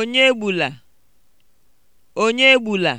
Onye gbula, onye gbula